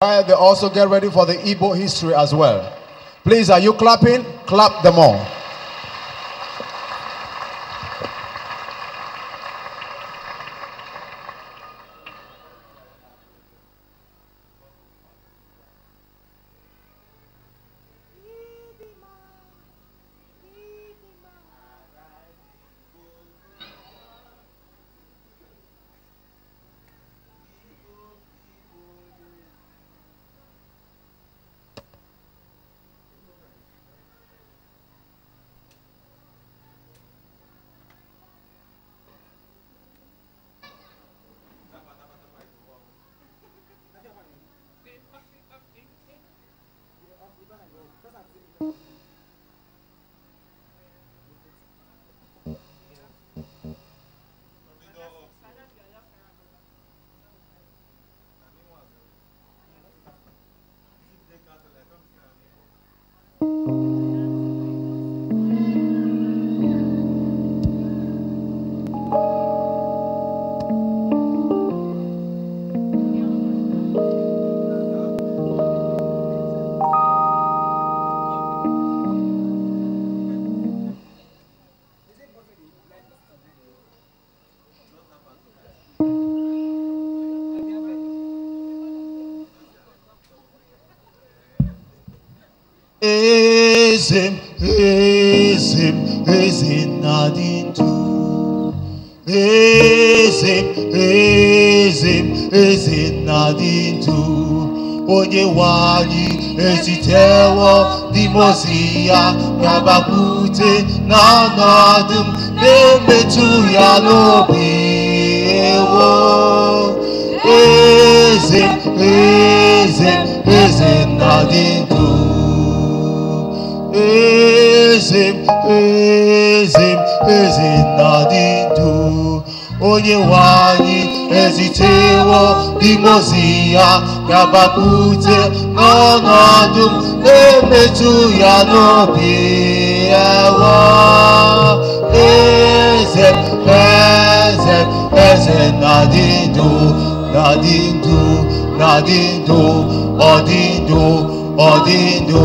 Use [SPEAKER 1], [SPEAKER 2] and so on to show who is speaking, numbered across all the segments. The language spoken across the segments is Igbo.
[SPEAKER 1] Uh, they also get ready for the Igbo history as well. Please, are you clapping? Clap them all. Ezim, ezim, ezin nadintu. Ezim, ezim, ezin nadintu. Onye wani ezitewo dimosia nabakute nanadim nemetu ya lobi ewo. Ezim, ezim, ezin nadintu praise him eze na dị ndụ onye nwe anyị ezitewo dimozi ya gabapute n'ọnọdụ na-emetụ ya n'obi ewo eze eze eze Nadi dị ndụ na dị ndụ na dị ndụ ọ ndụ ọ ndụ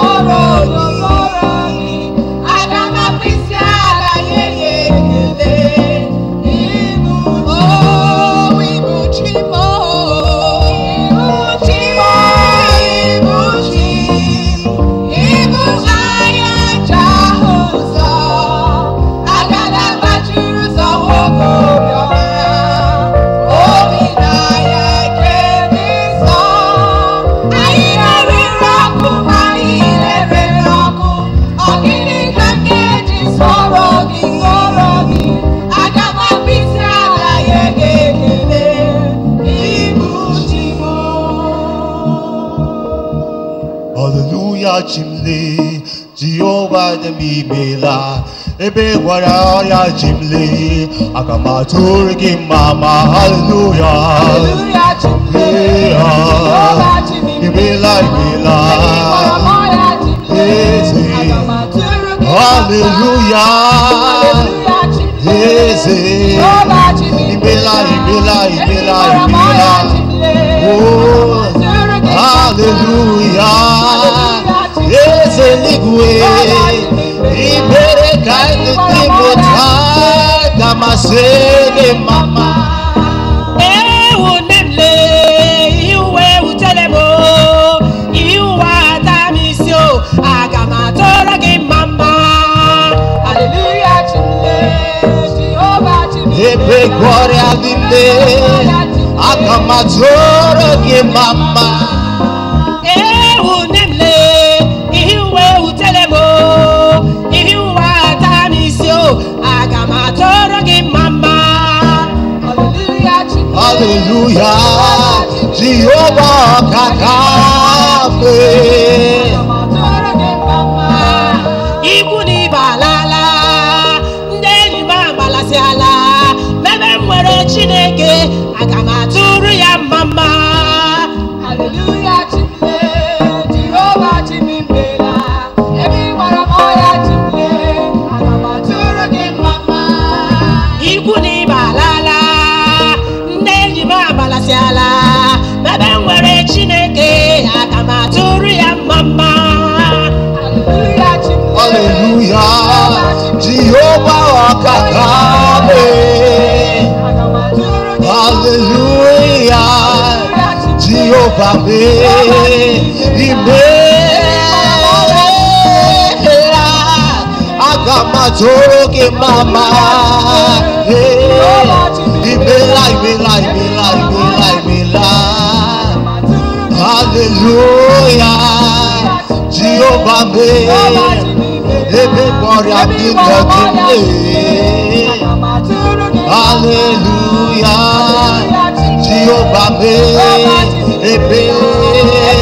[SPEAKER 1] tomorrow. ba mi ebe wara ya mama hallelujah hallelujah hallelujah hallelujah
[SPEAKER 2] nne aka m atụrụ mama ewu nne ihe uwe wutere m ihe uwe ata mama haleluya jehova ọka ka
[SPEAKER 1] Hallelujah. mama me me Oh over me.